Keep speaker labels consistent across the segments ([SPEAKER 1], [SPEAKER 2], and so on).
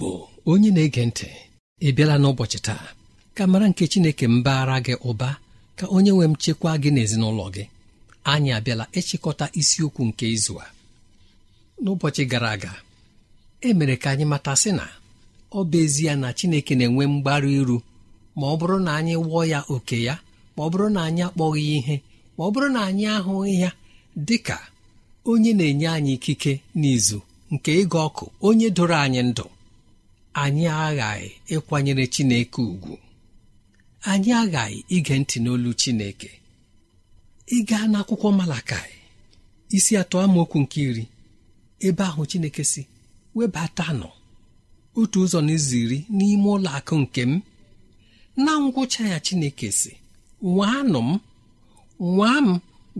[SPEAKER 1] Igbo onye na-ege ntị ị bịala n'ụbọchị taa ka mara nke Chineke mbaara gị ụba ka onye nwe m chekwaa gị n'ezinụlọ gị anyị abịala ịchịkọta isiokwu nke izu a n'ụbọchị gara aga e mere ka anyị mata sị na ọ bụ ezie na Chineke na-enwe mgbaru iru ma ọ bụrụ na anyị wụọ ya oke ya ma ọ bụrụ na anyị akpọghị ihe ma ọ bụrụ na anyị ahụghị ya dị ka onye na-enye anyị ikike n'izu nke ịga ọkụ onye doro anyị ndụ anyị aghaghị ịkwanyere chineke ugwu anyị aghaghị ige ntị n'olu chineke ịga n'akwụkwọ malakai isi atọ amaokwu nke iri ebe ahụ chineke si nọ otu ụzọ n'ụzọ iri n'ime ụlọ akụ nke m na ngwụcha ya chineke si nwaanụ m nwaa m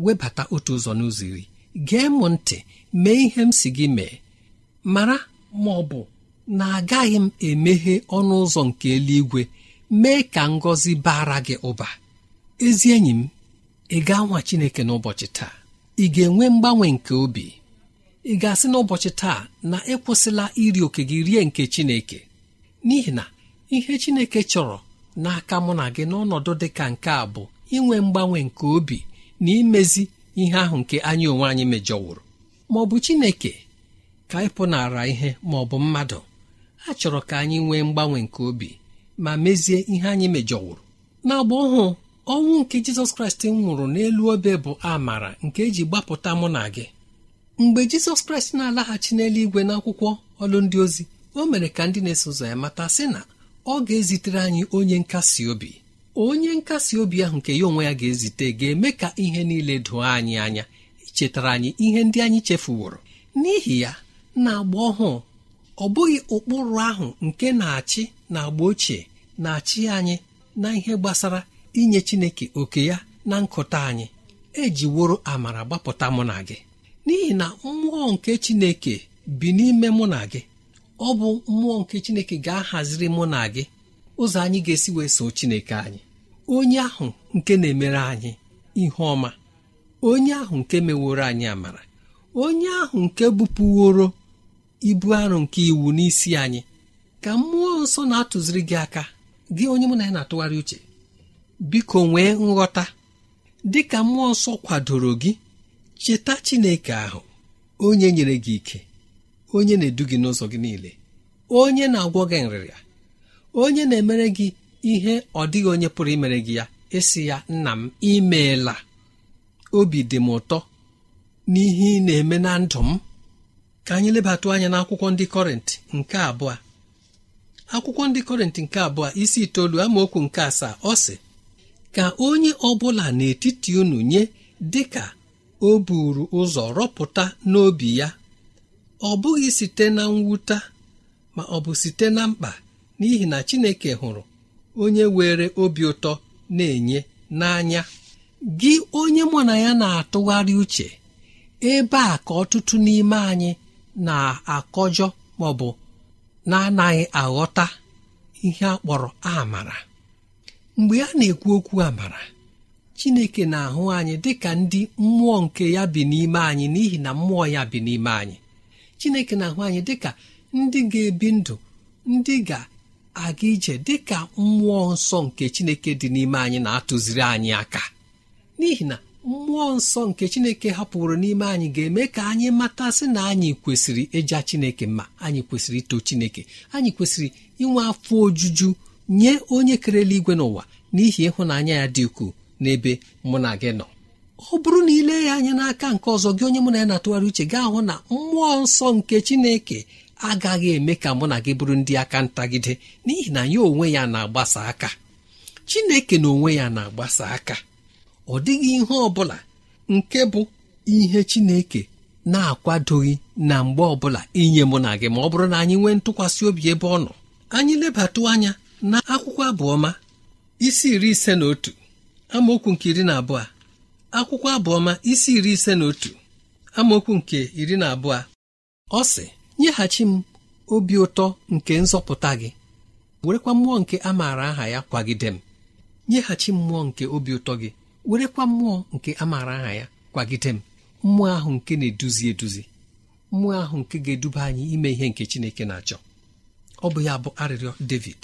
[SPEAKER 1] webata otu ụzọ n'ụzọ iri gee m ntị mee ihe m si gị mee mara ma ọ bụ na agaghị m emeghe ọnụ ụzọ nke eluigwe mee ka ngọzi bara gị ụba ezi enyi m ị ga-anwa Chineke n'ụbọchị taa ị ga-enwe mgbanwe nke obi ị ga-asị n'ụbọchị taa na ịkwụsịla iri oke gị rie nke Chineke n'ihi na ihe Chineke chọrọ n'aka mụ na gị n'ọnọdụ dị ka nke a bụ inwe mgbanwe nke obi na imezi ihe ahụ nke anyị onwe anyị mejọwụrụ ma ọ bụ Chineke ka ịpụnara ihe ma ọ bụ mmadụ a chọrọ ka anyị nwee mgbanwe nke obi ma mezie ihe anyị mejọwụrụ n'agba ọhụụ ọnwụ nke jizọs kraịst nwụrụ n'elu obe bụ amara nke eji gbapụta mụ na gị mgbe jizọs kraịst na-alaghachi n'eluigwe na akwụkwọ ọlụndị ozi o mere ka ndị na-eso ụzọ ya mata sị na ọ ga-ezitere anyị onye nkasi obi onye nkasi obi ahụ nke ya onwe ya ga-ezite ga-eme ka ihe niile doo anyị anya chetara anyị ihe ndị anyị chefuworo n'ihi ya na agba ọhụụ ọ bụghị ụkpụrụ ahụ nke na-achị na agba ochie na-achị anyị na ihe gbasara inye Chineke oke ya na nkụta anyị ejiworo amara gbapụta mụ na gị n'ihi na mmụọ nke Chineke bi n'ime mụ na gị ọ bụ mmụọ nke Chineke ga-ahaziri mụ na gị ụzọ anyị ga-esi wee so Chineke anyị onye ahụ nke na-emere anyị ihe ọma onye ahụ nke meworo anyị amara onye ahụ nke bupụworo ibu arụ nke iwu n'isi anyị ka mmụọ nsọ na-atụziri gị aka gị onye mụ na ya na-atụgharị uche biko nwee nghọta dị ka mmụọ nsọ kwadoro gị cheta Chineke ahụ onye nyere gị ike onye na-edu gị n'ụzọ gị niile onye na-agwọ gị nrịrịa onye na-emere gị ihe ọ dịghị onye pụrụ imere gị ya esi ya nna m imeela obi dị m ụtọ n'ihe ị na-eme na ndụ m ka anyị lebatụ anya akwụkwọ ndị kọrịntị nke abụọ akwụkwọ ndị kọrịntị nke abụọ isi itoolu amaokwu nke asaa ọ sị ka onye ọbụla n'etiti unu nye dị ka o buru ụzọ rọpụta n'obi ya ọ bụghị site na mwute ma ọ bụ site na mkpa n'ihi na Chineke hụrụ onye were obi ụtọ na-enye n'anya gị onye mụ na ya na-atụgharị uche ebe a ka ọtụtụ n'ime anyị na-akọjọ bụ na-anaghị aghọta ihe a kpọrọ amara mgbe a na-ekwu okwu amara chineke na-ahụ anyị dị ka ndị mmụọ nke ya bi n'ime anyị n'ihi na mmụọ ya bi n'ime anyị chineke na-ahụ anyị dị ka ndị ga-ebi ndụ ndị ga-aga ije dị ka mmụọ nsọ nke chineke dị n'ime anyị na-atụziri anyị aka n'ihi na mmụọ nsọ nke chineke hapụrụ n'ime anyị ga-eme ka anyị matasị na anyị kwesịrị ịja chineke mma anyị kwesịrị ito chineke anyị kwesịrị inwe afọ ojuju nye onye kerela igwe n'ụwa n'ihi ịhụnanya ya dị ukwuu n'ebe mụ na gị nọ ọ bụrụ na ile ya anya n'aka nke ọzọ gị onye mụ na ya na-atụgharị uche gị ahụ na mmụọ nsọ nke chineke agaghị eme ka mụ na gị bụrụ ndị aka ntagide n'ihi na ya onwe ya na-agbasa aka chineke na onwe ya na-agbasa aka ọ dịghị ihe ọ bụla nke bụ ihe chineke na-akwadoghị na mgbe ọbụla inye mụ na gị ma ọ bụrụ na anyị nwee ntụkwasị obi ebe ọ nọ anyị lebatụ anya na akwụkwọ abụọma isi iri ise na otu amaokwu nke iri na abụọ akwụkwọ abụọma isi iri ise na otu amaokwu nke iri na abụọ ọ sị nyeghachi m obi ụtọ nke nzọpụta gị werekwa mmụọ nke a aha ya kwagide m nyeghachi mmụọ nke obi ụtọ gị werekwa mmụọ nke a maara aha ya kwagide m mmụọ ahụ nke na-eduzi eduzi mmụọ ahụ nke ga-eduba anyị ime ihe nke chineke na-achọ ọ bụ ya bụ arịrịọ david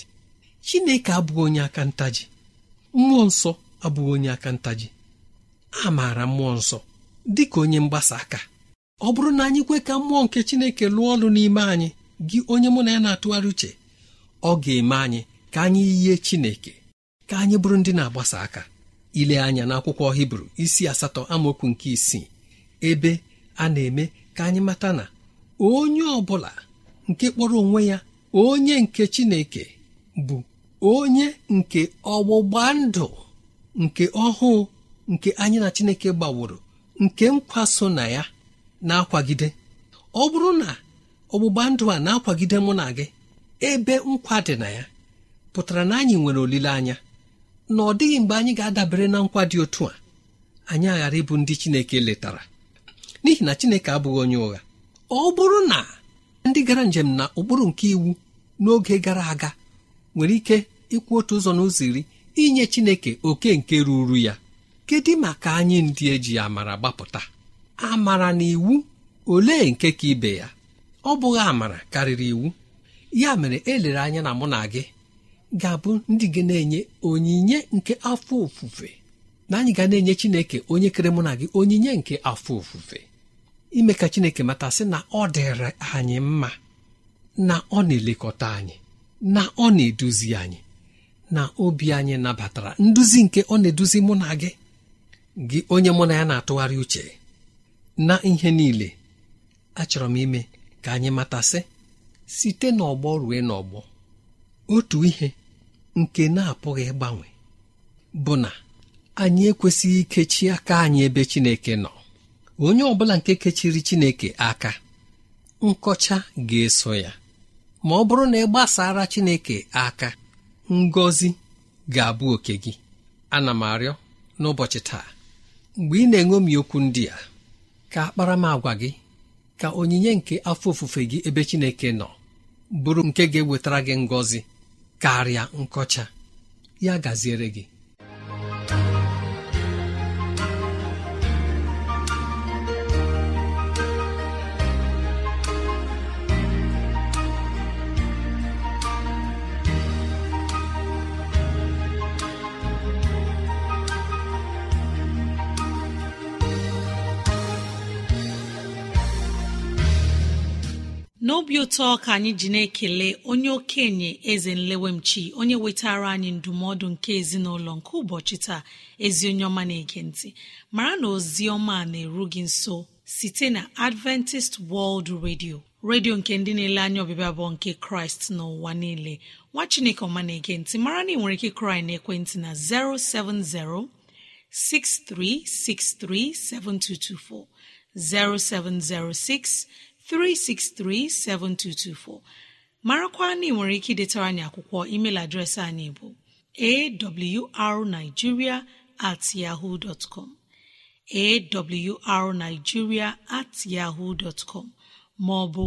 [SPEAKER 1] chineke abụghị onye aka ntaji mmụọ nsọ abụghị onye aka ntaji a maara mmụọ nsọ dị ka onye mgbasa aka ọ bụrụ na anyị kwe ka mmụọ nke chineke lụọ ọrụ n'ime anyị gị onye mụ na ya na-atụgharị uche ọ ga-eme anyị ka anyị yie chineke ka anyị bụrụ ndị na-agbasa aka ile anya n'akwụkwọ hibru isi asatọ amaokwu nke isii ebe a na-eme ka anyị mata na onye ọ bụla nke kpọrọ onwe ya onye nke chineke bụ onye nke ọgbụgba ndụ nke ọhụụ nke anyị na chineke gbaworo nke nkwa so na ya na-akwagide ọ bụrụ na ọgbụgba ndụ a na-akwagide mụ na gị ebe nkwa dị na ya pụtara na anyị nwere olileanya na ọ dịghị mgbe anyị ga-adabere na nkwa dị otu a anyị aghara ịbụ ndị Chineke letara n'ihi na Chineke abụghị onye ụgha ọ bụrụ na ndị gara njem na ụkpụrụ nke iwu n'oge gara aga nwere ike ịkwụ otu ụzọ n'ụzọ iri inye Chineke oke nke ruru ya kedu maka anyị ndị eji amara gbapụta amara na iwu olee nke ka ibe ya ọ bụghị amara karịrị iwu ya mere elere anya na mụ na gị ga-abụ ndị gị na-enye onyinye nke afọ ofufe na anyị ga na-enye Chineke onye kere mụ na gị onyinye nke afọ ofufe ime ka Chineke mata sị na ọ dịrị anyị mma na ọ na-elekọta anyị na ọ na-eduzi anyị na obi anyị nabatara nduzi nke ọ na-eduzi mụ na gị gị onye mụ na ya na-atụgharị uche na ihe niile achọrọ m ime ka anyị matasị site n'ọgbọ rue n'ọgbọ otu ihe nke na-apụghị ịgbanwe bụ na anyị ekwesịghị ikechi aka anyị ebe Chineke nọ onye ọ bụla nke kechiri Chineke aka nkọcha ga-eso ya ma ọ bụrụ na ị gbasara Chineke aka ngozi ga-abụ oke gị ana m arịọ n'ụbọchị taa mgbe ị na-eṅomi okwu ndị a ka akparamagwa gị ka onyinye nke afọ ofufe gị ebe Chineke nọ bụrụ nke ga-ewetara gị ngọzi karịa nkọcha ya gaziere gị
[SPEAKER 2] obi ụtọ ka anyị ji na-ekele onye okenye eze nlewemchi onye wetara anyị ndụmọdụ nke ezinụlọ nke ụbọchị taa ezi onye ọma na-ege mara na ozi ọma na-eru gị nso site na adventist world radio redio nke ndị na-ele anya ọbịbịa bụ nke kraịst n'ụwa niile nwa chineke ọma na-ege mara na ị nwere ike kraị na ekwentị na 070 6363 7224 0706 3637224 marakwa na ị nwere ike idetara anyị akwụkwọ email adreesị anyị bụ awrnigeria at yaho dọtcom awrnigeria at yaho dọtcom maọbụ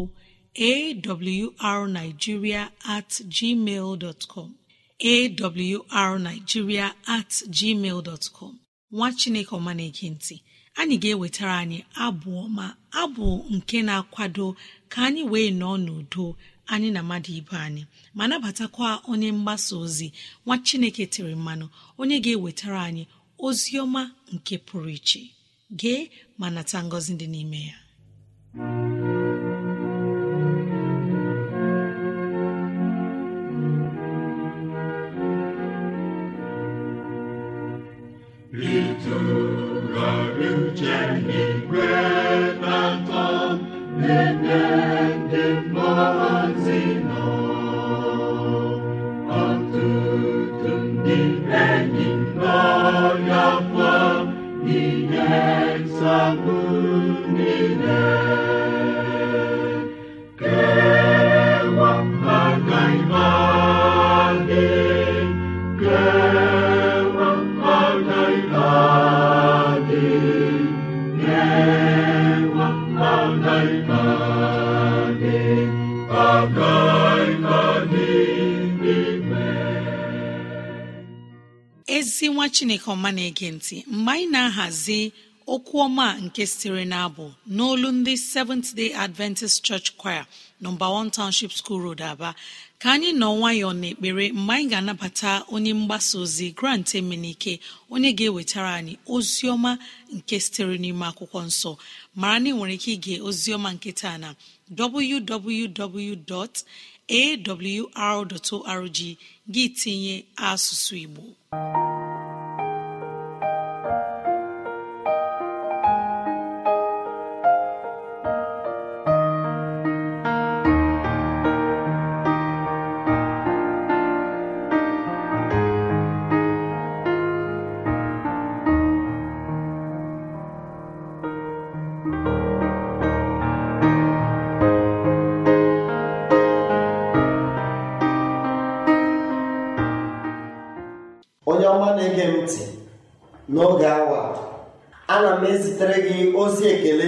[SPEAKER 2] at gmail at gmail dọtcom nwa chineke ọma ntị anyị ga-ewetara anyị abụ ọma abụ nke na-akwado ka anyị wee nọọ n'udo anyị na mmadụ ibe anyị ma nabatakwa onye mgbasa ozi nwa chineke tiri mmanụ onye ga-ewetara anyị ozi ọma nke pụrụ iche gee ma nata ngọzi dị n'ime ya chineke ọma na-ege ntị mgbe anyị na-ahazi okwu ọma nke sitere n'abụ abụ n'olu ndị seventh day adventist church choir nọmba 1 township school road aba ka anyị nọ nwayọọ n'ekpere mgbe anyị ga-anabata onye mgbasa ozi grant emenike onye ga-ewetara anyị ozi ọma nke sitere n'ime akwụkwọ nsọ mara na ị nwere ike ige ozi ọma na www.awr.org gị tinye asụsụ igbo
[SPEAKER 3] na-ege ntị n'oge awa ana m ezitere gị ozi ekele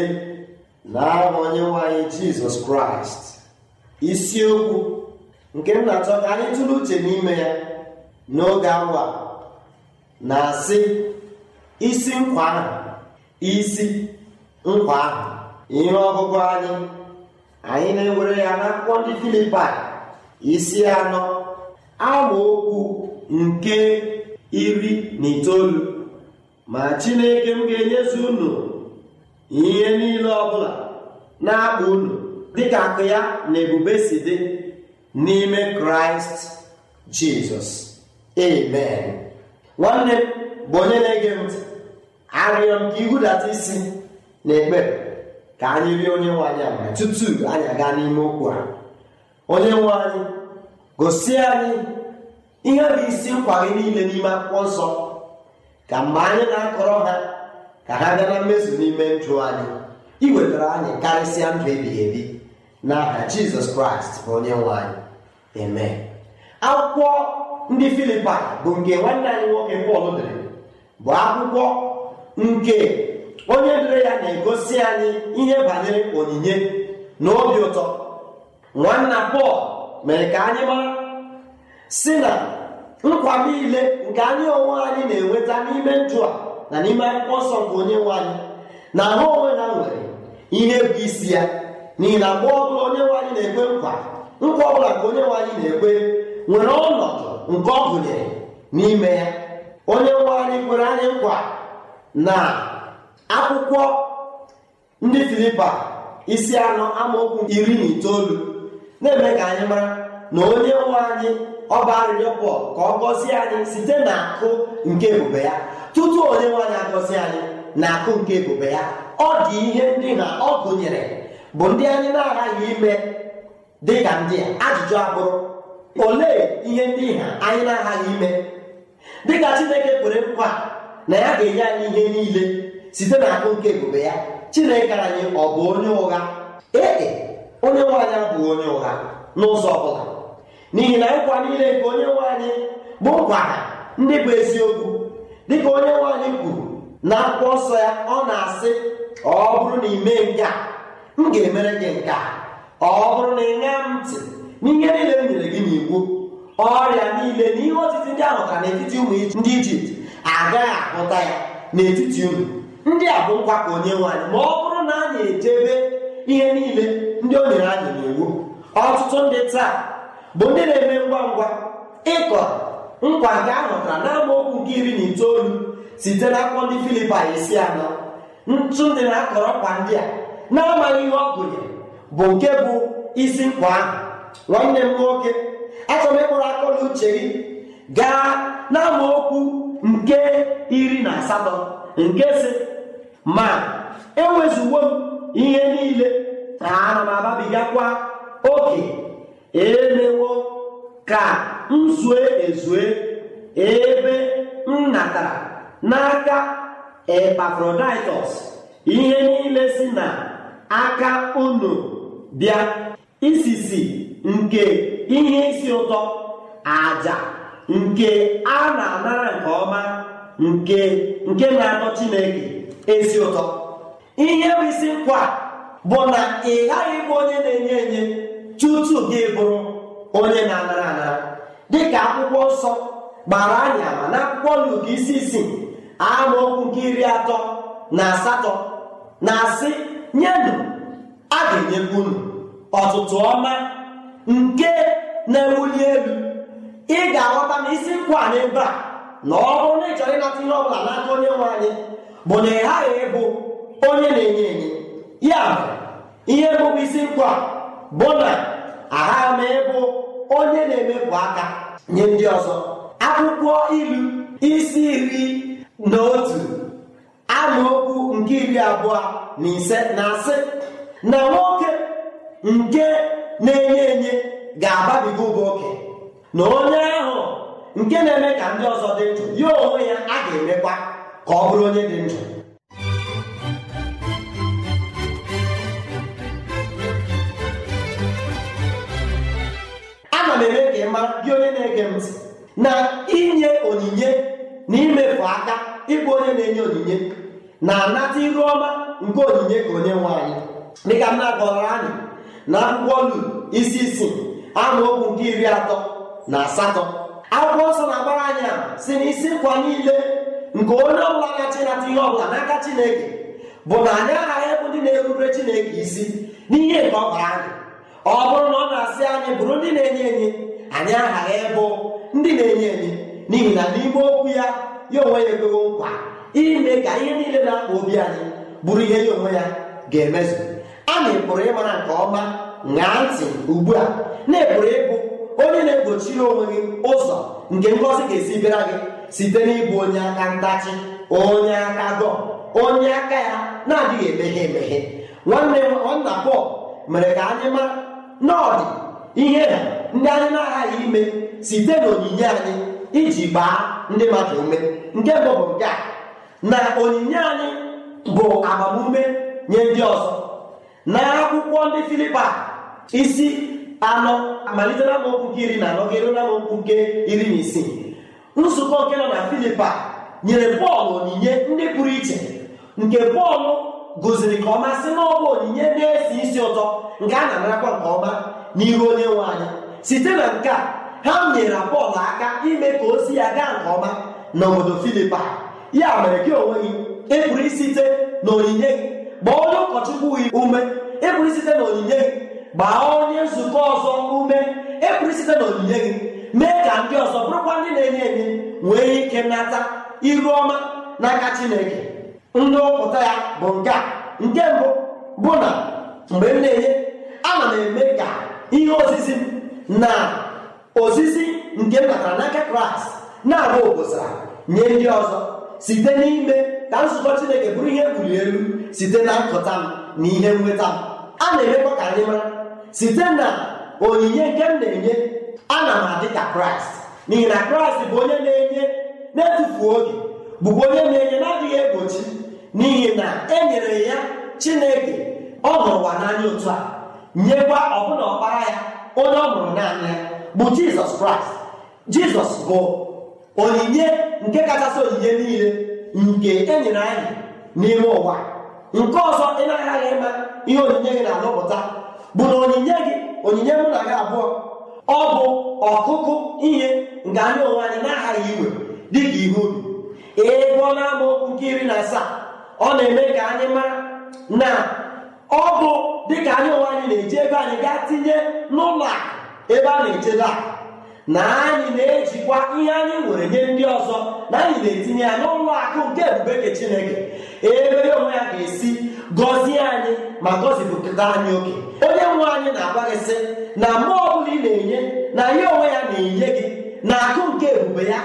[SPEAKER 3] na aha onye anyị jizọs kraịst isiokwu nke m na-achọ ka tụrụ uche n'ime ya n'oge awa na-asị isi nkwa ahụ isi nkwa ahụ ihe ọgụgụ anyị anyị na-ewere ya n'akwụkwọ ndị filipa isi anọ okwu nke iri na itoolu ma chineke m ga-enyezu unu ihe niile ọbụla na-akpa unu dịka akụ ya na ebube si dị n'ime kraịst jizọs amen nwanne m bụ onye na-ege ntị arịọ m ka ihudata isi na ekpere ka anyị rie onye nwe anyị ama tutu anyị aga n'ime okwu a onye nwe anyị gosi anyị ihe bụ isi nkwa gị niile n'ime akwụkwọ nsọ ka mgbe anyị na-akọrọ ha ka ha bịa na mmezu n'ime ndụ anyị iwetara anyị karịsịa ndụ ebighị ebi n'aha jizọs kraịst bụ onye nwe anyị eme akwụkwọ ndị Filipa bụ nke nwanne anyị nwoke pọl dere bụ akwụkwọ nke onye dere ya na-egosi anyị ihe banyere onyinye na obi ụtọ nwanna pọl mere ka anyị mara si na nkwa niile nke anya onwe anyị na-enweta n'ime ndụ a na n'ime akwụkwọ nsọ nke onye nwe anyị na ha onwe ha nwere ihe bụ isi ya n'ihi na mgbe ọbụla onye nwe anyị na-ekwe nkwa nkwa ọbụla nke onye nwe anyị na-ekwe nwere ọnọdụ nke ọ gụnyere n'ime ya onye nwe anyị kwere anyị nkwa na akwụkwọ ndị filipa isi anọ amaokwu iri na itoolu na-eme ka anyị mara na onye nwe anyị ọ bụ arịrịọ pọl ka ọ gọzie anyị site n'akụ nke ebube ya tutu onye nwanyị agọzi anyị na akụ nke ebube ya ọ dị ihe ndị na ọ gụnyere bụ ndị anyị na-aghaghị ime dị ka ndị a ajụjụ abụrụ olee ihe ndị ha anyị na-aghaghị ime dịka chineke kwere nkwa na ya ga-enye anyị ihe niile site na akụ nke ebube ya chineke anyị ọ bụ onye ụgha ee e, onye nwaanyị abụghị onye ụgha n'ụzọ ọ bụla n'ihi na nkwa niile nke onye nwe bụ nkwada ndị bụ eziokwu dịka onye nwe kwuru na akwụkwọ nsọ ya ọ na-asị ọ bụrụ na ị mee nke a m ga-emere gị nke a ọ bụrụ na ị m ntị n'ihe niile m nyere gị n'iwu ọrịa niile na ihe otiti ndị ahụ ka n'etiti ụmụ ndị ijipt agaghị ahụta ya n'etiti ụmụ ndị a bụ nkwa ka onye nwe ma ọ bụrụ na anyị echebe ihe niile ndị o nyere anyị n'iwu ọtụtụ ndị taa bụ ndị na-eme ngwa ngwa ịkọ nkwa nke a hụtara na amaokwu nke iri na itoolu site n'akwụkwọ ndị filipin isi anọ ntụ dị na-akọrọ kwa ndị a na-amaghị ihe ọ gụnyere bụ nke bụ isi nkwa ahụ nwanne m nwoke achọrọ ịkpụrụ akọla uche gị gaa na okwu nke iri na asatọ nke si ma enwezugbo m ihe niile na ana m ababigakwa oke emewo ka m zue ezue ebe m natara n'aka epafroditọs ihe niile si na aka unu bịa isisi nke ihe isi ụtọ aja nke a na-anara nke ọma nke nke na-atọ chineke ezi ụtọ ihe bụ isi nkwa bụ na ị ghaghị ịbụ onye na-enye enye tutu gị bụrụ onye na-anara anara dịka akwụkwọ nsọ gbara anya ma na akwụkwọ Luk isi isii amaokwu nke iri atọ na asatọ na-asị nyenụ a ga-enyekwa unu ọtụtụ ọma nke na-ewuli elu ị ga-aghọta na isi nkwa n'ebe a na ọ bụrụ na ị chọrọ ịnata ihe ọ bụla n'aka onye nwe anyị bụ na ị ghaghị ịbụ onye na-enye enye ya bụ ihe bụbụ isi nkwa bụ na agha m ịbụ onye na-emepụ aka nye ndị ọzọ akwụkwọ ilu isi iri na otu amaokwu nke iri abụọ na ise na asị na nwoke nke na-enye enye ga-ababiga ụba oke na onye ahụ nke na-eme ka ndị ọzọ dị ndụ ya onwe ya a ga-emekwa ka ọ bụrụ onye dị ndụ gị gị onye na-ege ntị na inye onyinye na imefu aka ịbụ onye na-enye onyinye na-anata iru ọma nke onyinye ka onye nwe anyị dịka m na-agọrọ anyị na akwụkwọ isi isi isii amaokwu nke iri atọ na asatọ akwụkwọ nsọ na-agbara anyị a si na isi nkwa niile nke onye ọbụla gachi nata ihe ọbụla n'aka chineke bụ na anyị aghaghị ịbụ ndị na-erubere chineke isi n'ihe nke ọ bara anyị ọ bụrụ na ọ na-asị anyị bụrụ ndị na-enye enye anyị aghara ịbụ ndị na-enye enye n'ihi na n'ime okwu ya ya onwe ya ekwewo nkwa ime ka ihe niile na-akpa obi anyị bụrụ ihe ya onwe ya ga-emezu anyị pụrụ ịmara nke ọma ṅaa ntị ugbu a na-eburu ịbụ onye na egbochi onwe gị ụzọ nke ngọzi ga-esi bịara gị site n'ịbụ onye aka ntachi onye aka dọ onye aka ya na-adịghị emeghe emeghe nwanne m nna Pọl mere ka anyị mara na ihe ndị anyị na-aghaghị ime site n'onyinye anyị iji gbaa ndị mmadụ ume nke bụ bụ nke a na onyinye anyị bụ agbamume nye ndị ọzọ na akwụkwọ ndị filipa isi anọ amalite na nke iri na anọ ga na amaokwu nke iri na isii nzukọ nke nọ na filipa nyere bọọlụ onyinye ndị pụrụ iche nke bọọlụ gụziri ka ọma sị na ọ onyinye na-esi isi ụtọ nke a na-anarakwa nke ọma n'ihu onye nwe anyị site na nke a ha nyere Pọl aka ime ka ozi ya gaa nke ọma na n'obodo Filipa ya mere gị onwe gị ịpụrụ e isite na onyinye gị gbaa onye ụkọchukwu gị ume ịpụrụ e isite na onyinye gị gbaa onye nzukọ ọzọ ume ịpụrụ e isite na onyinye gị mee ka ndị ọzọ bụrụkwa ndị na-enye enye nwee ike nata iru ọma n'aka Chineke ndụpụta ya bụ nke a nke mbụ bụ na mgbe m na-enye ana m eme ka ihe ozizi na ozizi nke m n'aka kraịst na agba obosara nye ndị ọzọ site n'ime ka nzukọ chineke bụrụ ihe mbuli elu site na nkụta m na ihe nweta m a na-emekwa ka anyị mara site na onyinye nke m na-enye ana m adị ka kraịst n'ihi na kraịst bụ onye na-enye na-etufu oge bụkwa onye na-enye na-adịghị egbochi n'ihi na e nyere ya chineke ọ hụrụ ụwa n'anya otu a nyekwa ọbụna ọkpara ya onye ọ mụrụ naanị ya bụ jizọs kraịst jizọs bụ onyinye nke kachasị onyinye niile nke enyere anyị n'ime ụwa nke ọzọ ị na ịma ihe onyinye gị na-alụpụta bụ na onyinye gị onyinye mụ na gị abụọ ọ bụ ọkụkụ ihe nke anyị onwe anyị na-aghaghị iwe dịka ihu ubi ebe na-amụ nke iri na asaa ọ na-eme ka anyị maa na ọ bụ dịka anyị onwe anyị na-eji ebe anyị gaa tinye n'ụlọ akụ ebe a na-echebe akụ na anyị na-ejikwa ihe anyị nwere nye ndị ọzọ na anyị na-etinye ya n'ụlọ akụ nke ebube nke chineke ebe ya onwe ya ga-esi gọzie anyị ma gọzipụta anyị oke onye nwe anyị na-agwa gị sị na mgbe ọbụla ị na-enye na ya onwe ya na-enye gị na akụ nke ebube ya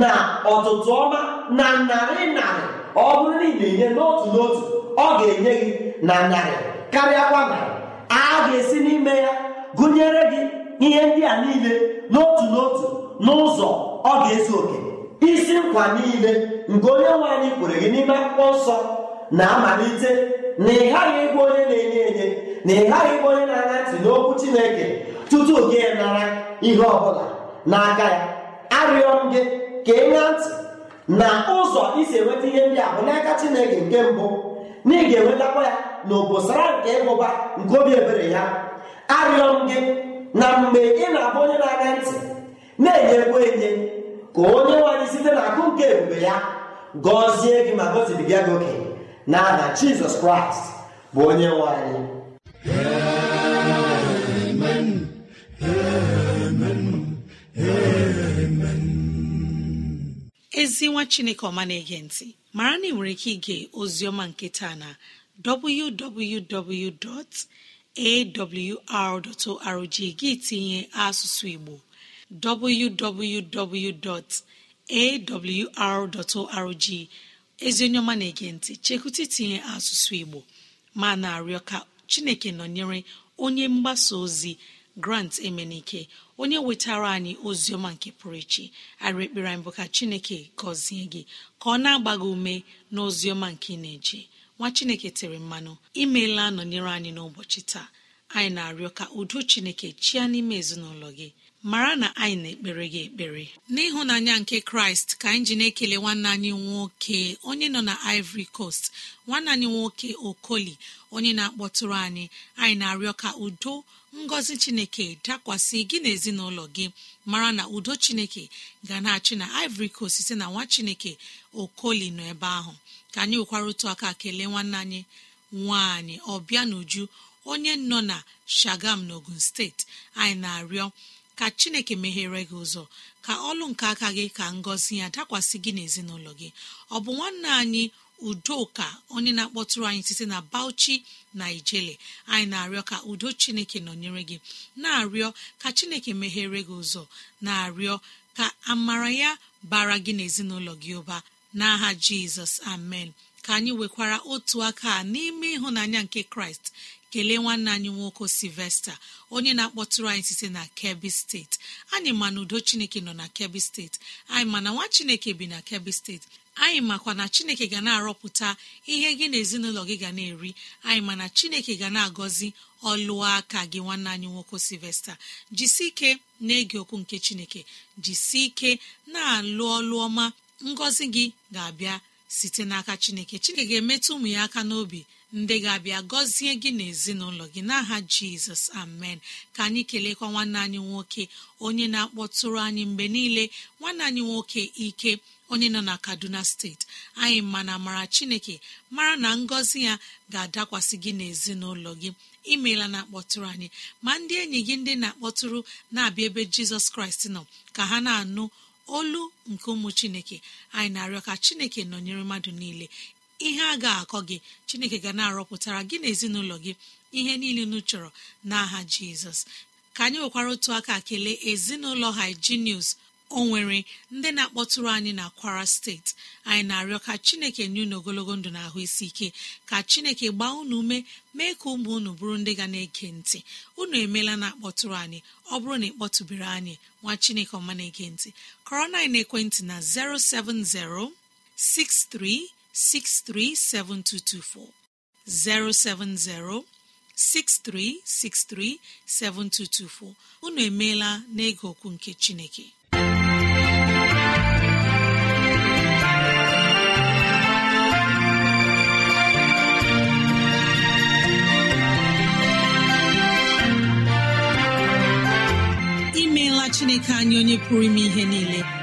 [SPEAKER 3] na ọtụtụ ọma na narị narị ọ bụrụ na ị na-enye n'otu n'otu ọ ga-enye gị na narị karịa kwa narị a ga-esi n'ime ya gụnyere gị ihe ndị a niile n'otu n'otu n'ụzọ ọ ga-ezu oke isi nkwa niile nke onye nwe anyị kwere gị n'ime akwụkwọ nsọ na-amalite na ị ghaghị ịbụ onye na-enye enye na ị ghaghị ịbụ onye na-ana ntị n'okwu Chineke tutu gị nara ihe ọbụla n'aka ya arịọ m gị ka ị ntị na ụzọ isi enweta ihe ndị a bụ n'aka Chineke nke mbụ na ị ga-enwetakwa ya na obosara nke ịhụba nke obi ebere ya arịọ m gị na mgbe ị na-abụ onye na-aga ntị na-enyekwa enye ka onye nwanyị site na akụ nke ebube ya gọzie gị ma gọzibiga gị oke aha Jizọs Kraịst bụ onye nwanyị
[SPEAKER 2] ezi nwa chineke ọma na-ege ntị mara na ị nwere ike ige ozioma nke taa na www.awr.org gị tinye asụsụ igbo ezi onye ọma na-ege ntị chekwụta itinye asụsụ igbo ma na-arịọ ka chineke nọnyere onye mgbasa ozi grant emenike onye wetara anyị oziọma nke pụrụ iche arị ekpere anyị bụ ka chineke gọzie gị ka ọ na-agba gị ume na oziọma nke ị na-eje nwa chineke tere mmanụ imeela nọnyere anyị n'ụbọchị taa anyị na-arịọ ka udo chineke chịa n'ime ezinụlọ gị mara na anyị na-ekpere gị ekpere n'ịhụnanya nke kraịst ka anyị ji na-ekele nwanne anyị nwoke onye nọ na ivory coast nwanne anyị nwoke okoli onye na-akpọtụrụ anyị anyị na-arịọ ka udo ngọzi chineke dakwasị gị na ezinụlọ gị mara na udo chineke ga na-achị na ivory coast site na nwa chineke okoli nọ ebe ahụ ka anyị nwekwara otu aka kelee nwanne anyị nwanyị ọbịa n'uju onye nọ na shagam n'ogun steeti anyị na-arịọ ka chineke meghere gị ụzọ ka ọlụ nke aka gị ka ngọzi ya dakwasị gị na gị ọ bụ nwanne anyị udoka onye na-akpọtụrụ anyị site na bauchi naijiria anyị na-arịọ ka udo chineke nọnyere gị na-arịọ ka chineke meghere gị ụzọ na-arịọ ka amara ya bara gị n'ezinụlọ gị ụba n'aha jizọs amen ka anyị nwekwara otu aka n'ime ịhụnanya nke kraịst kelee nwanne anyị nwoke silvesta onye na-akpọtụrụ anyị site na kebbi steeti anyị ma na udo chineke nọ na kebbi steeti anyị ma na nwa chineke bi na kebbi steeti anyị makwa na chineke ga na-arọpụta ihe gị na ezinụlọ gị ga na-eri anyị mana chineke ga na-agọzi ọlụọ aka gị nwanne anyị nwoke silvesta jisi ike na-ege okwu nke chineke jisi ike na-alụ ọlụ ọma ngọzi gị ga-abịa site n'aka chineke chineke ga-emetụ ụmụ ya aka n'obi ndị ga-abịa gọzie gị n'ezinụlọ gị n'aha jizọs amen ka anyị kelekwa nwanne anyị nwoke onye na-akpọtụrụ anyị mgbe niile nwanne anyị nwoke ike onye nọ na kaduna steeti anyị mana mara chineke mara na ngọzi ya ga-adakwasị gị n'ezinụlọ gị imeela na akpọtụrụ anyị ma ndị enyi gị ndị na-akpọtụrụ na-abịa ebe jizọs kraịst nọ ka ha na-anụ olu nke ụmụ chineke anyị na-arịọ ka chineke nọnyere mmadụ niile ihe a ga-akọ gị chineke ga na-arọpụtara gị na ezinụlọ gị ihe niile unu chọrọ n'aha jizọs ka anyị nwekwara otu aka kelee ezinụlọ haijinius o nwere ndị na-akpọtụrụ anyị na kwara steeti anyị na-arịọ ka chineke nye unu ogologo ndụ na ahụ isi ike ka chineke gbaa unu ume mee ka ụmụ unu bụrụ ndị ga na-ege ntị unu emeela na akpọtụrụ anyị ọ bụrụ na ịkpọtụbere anyị nwa chineke ọma na-ege ntị kọrọ na ekwentị na 070 63 637224 070 unu emeela n'ịga okwu nke Chineke imeela Chineke anyị onye pụrụ ime ihe niile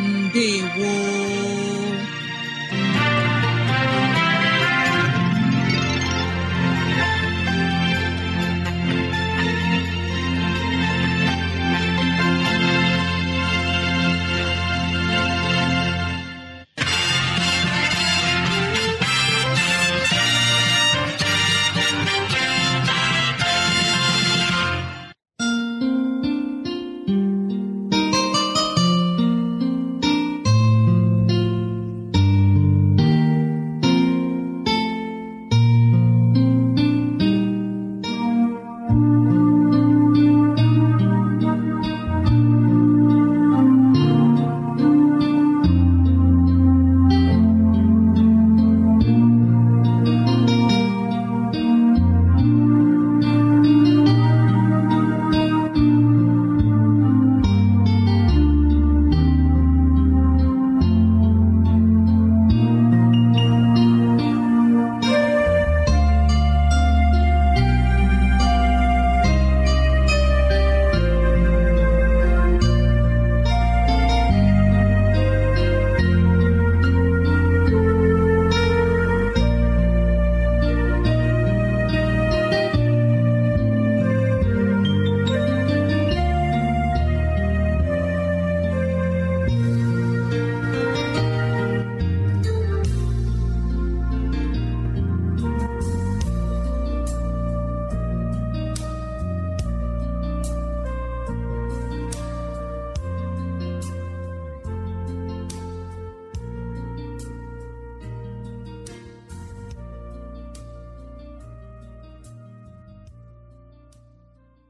[SPEAKER 2] ndewo